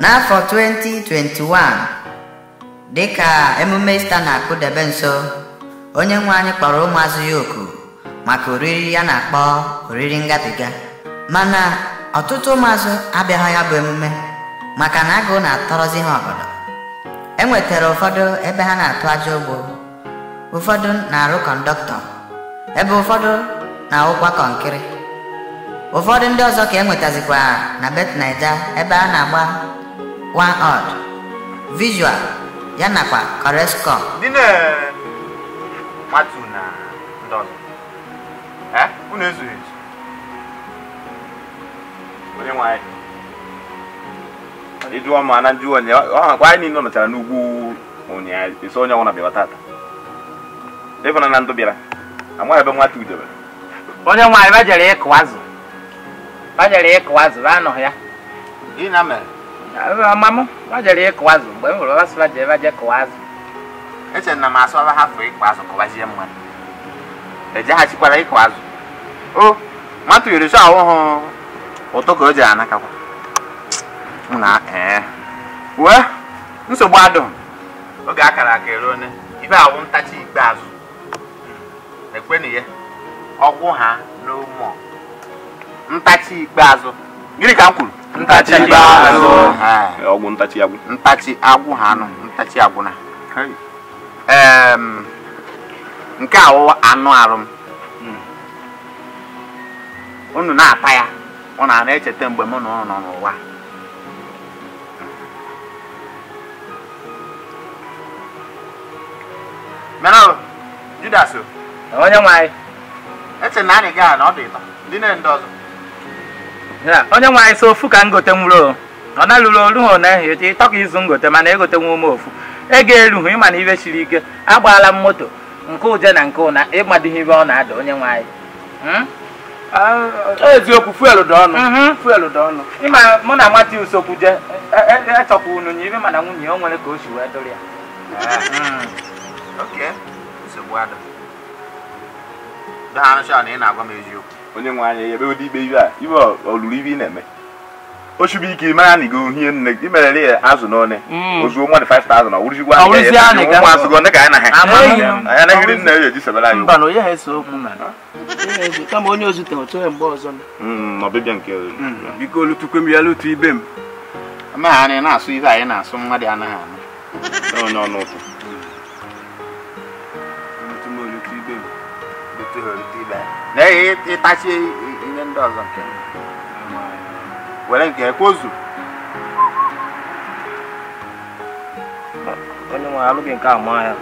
n'afọ 2021 dịka emume ista na Debe nso onye nwe anyị kpọrọ ụmụazụ ya oku maka oriri ya na-akpọ oriri ngabiga mana ọtụtụ ụmụazụ abịaghị ya bụ emume maka na agụụ na-atọrọzi ha obodo. e nwetara ụfọdụ ebe ha na-atụ aja ụgbọ ụfọdụ na-arụ kọndọktọ ebe ụfọdụ na-awụkwa kọnkịrị ụfọdụ ndị ọzọ ka e nwetazikwa na bet naija ebe a na-agba one art visual ya nakwa correscom ndị na-matu na ndị ọzọ unu ezughị ezu onye nwanyị ịdụọ ma na ndị onye ọhakwa anyị niile n'ugwu esi onye ọnwụna tata ịbụna na ndụ bịara amaghị ebe nwata onye nwanyị ịkụ azụ bajere ịkụ azụ ya na mere Mamụ, ọ jere ịkụ azụ mgbe m hụrụ ọba sịba jee ebe a jee kụwa azụ. Echere na m asụ ọba hafụ ịkụ azụ kụwazie mmadụ. Ejeghachikwara ịkụ azụ. O, mmadụ yiri sọ ahụ hụ ụtọ ka o ji anakakwa. Na ee. Wee, nsogbu adụ. Oge akara aka eruo ne, ibe awụ ntachi ikpeazụ. Ekwenu ya, ọgwụ ha n'ụmụ ntachi ikpeazụ. Gịnị ka m kwuru? ntachi ibe azụ ọgwụ ntachi agwụ ntachi agwụ ha anụ ntachi agwụ na em, nke a anụ arụ m hmm. unu na-ata ya ọ na-ana echeta mgbe mụ na ụnụ nọ n'ụwa menalụ judas onye nwe anyị eche na anyị gaa na ọ dị ịtọ ndị na-ndị ọzọ onye nwe anyị si ofu ka m gote o ọ na olu ha na ehi echi tọka izu ngote mana egote nwa ume ofu ego erughị ịma na ibe siri ike agbaala m moto nke uje na nke ụna ịmadịghị ibe ọ na-ada onye nwe anyị hmm? eziokwu fuelu dị ọnụ mhm. fuelu dị ọnụ ịma mụ na mati usokwu je echọkwa e, e, e unu nye ibe mana nwunye o nwere ka o si wee dụrụ ya nsogbu adụ dị ha na ị na-agwa m eziokwu onye nwe anya ebe ụdị ikpe iwe a iwe olulu ibe ị na-eme o chubi ike mara na igo uhie nne gị merere ya azụ n'one ozuo mmadụ 5000 na wụrụzikwa nwa azụgo ndị ka anyị na ha anyị anaghịrị nna ya eji sebere anyị mba na onye ha ese okwu na kama onye ozu tere otu mgbe ọzọ hmm, ọbịbịa nke hmm. biko olutukwe m ya lutu ibe m amaghị anyị na-asụ ihe anyị na-asụ nwa dị anaghị anụ na ịtachi ihe ndị ọzọ nke were nke kwozu onye nwe alụghị nke a maa ya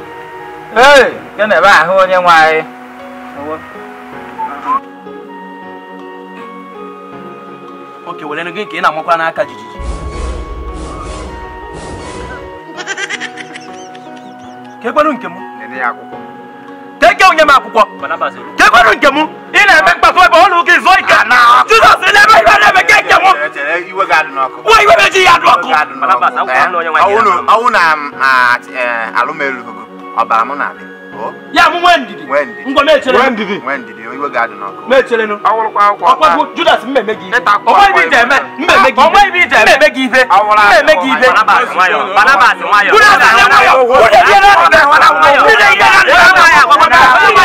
ee nke na-ebe ahụ onye nwe anyị oke were gị ka ị na-amakwa n'aka jijiji kekwanụ nke m keke onye m akwụkwọ kekwanụ nke m ị na-eme mkpafọ ebe ọnụ gị zụọ ike jizọs na-eme iwe na-eme ka eke iwe meji ya dị ọkụ ọnwụ na alụmelu ọbara mụ na ya mụ nwee ndidi ngwa mecherenu ọkwagwu judas mmemme gị onweghị ije eme gị ife mmemme ọkụ ife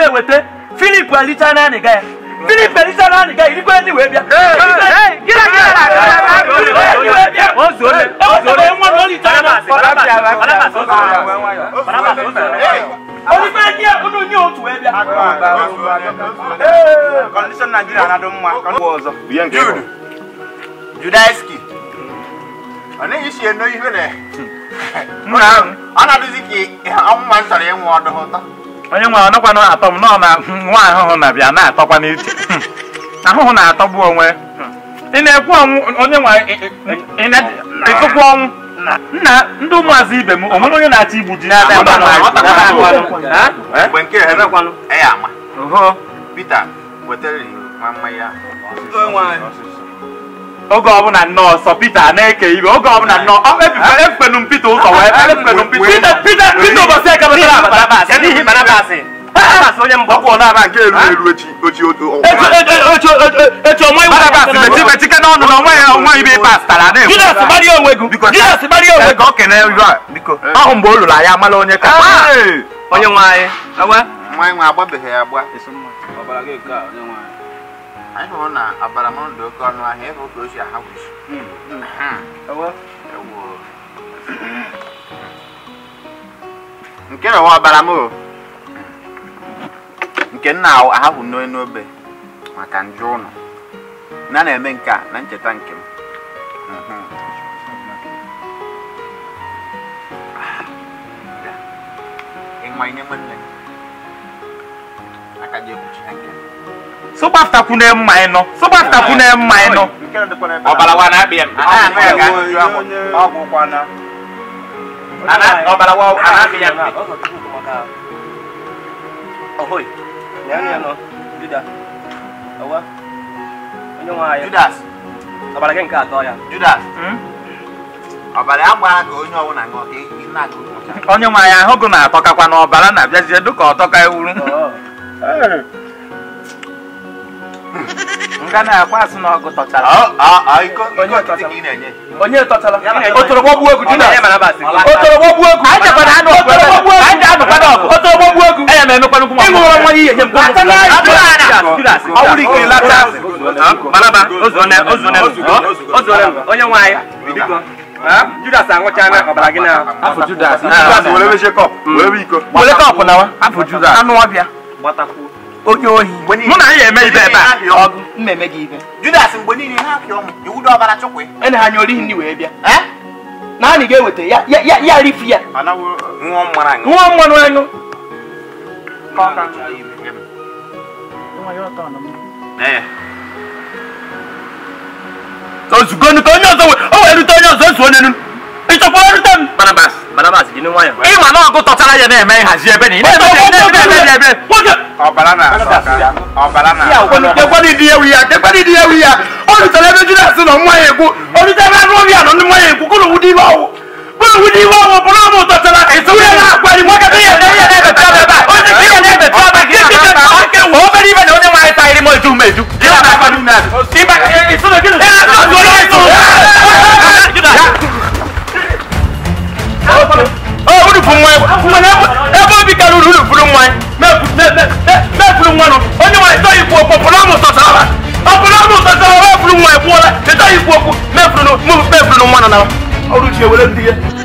na-eweta filip na anịga ya filip alita na anịga ya irikwe ndị wee bịa na judaiski ọ na hmm. ọ ka ịnwụ onye nwe ọnọkwana atọ m nọ na nwa ahụhụ na bịa na-atọkwa n'isi ahụhụ na-atọgbu onwe ị na-ekwu ọnwụ onye nwe ịtụkwu ọnwụ nna ndị ụmụazị ibe m onwere onye na-achọ igbu ji Pita wetara ya oge ọbụla nọọsọ Pita na-eke ibe oge ọbụla nọọ ah, ekpenu e m ụzọ wee ekpenu m ụbọchị eke batara abatara n'ihi Barabas onye nke elu na ahụ mgbe o lụrụ amala onye ka onye ai hụrụ na abaramọnụ dị oke ọnụ ahịa ịhụ ka o si ahapụsi nke na nwa abaramọnụ nke nna ahapụ n'oye n'obe maka njụ ụnụ na na-eme nke a na ncheta nke m ịnwa inye nwanne sọgbapụta kwụ na mma ịnọ sọgbapụta kwụ na mma ịnọ ọbara wa na-abịa ọbara wa na-abịa Judas ọbara gị nke atọ ya Judas hmm? ọbara ya gbara ka onye ọbụla ṅụọ ka ị na-agụ onye nwe anyị ahụ gụ na-atọkakwa na ọbara na-abịazie dịka ọtọka ewuru oh. nga na-akwa asị na ọgụ tọchara onye tọchara otorogbo egwu egwu anya m emekwa nkwụ ịṅụrụ nwa ihe ọwụrụ ike lata onye Judas ọbara gị na afọ Judas were kọpụ Wele anụ ọbịa onye ohi mụ na anyị eme ibe ebe a mmemme gị ibe Judas mgbe niile ha apịọ m iwu dị ọbara chukwu ene ha nye orighi ndị wee bịa naanị ga-eweta ya ya ya rifi ya nwa mmanụ anyụ ozugonu ka onye ọzọ o wee rute onye ọzọ nso onye nu ịchọkwa rute m Barnabas balaba si di ni wayan. e ma na ko tọtara yẹ n'ẹmẹ hazi ẹbẹ ni. ne bẹ ne bẹ ne bẹ ne bẹ. ọbala na sọka ọbala na. ọlọ di ewu ya kẹgbẹni di ewu ya olùsọlẹ bẹ jùlọ sí lọ mọ yẹn kú olùsọlẹ bẹ nù bí àná ni mọ yẹn kú kó ló wù di bá wò kó ló wù di bá wò bọlá mọ tọtara èso yẹn náà gbẹni mọ kẹtẹ yẹ na-ekwuru nwa onye ọpụrụ ọmụ tọtara ọpụrụ ọmụ nwa ikwu okwu mefuru mefuru nwa nọ na e ndị ya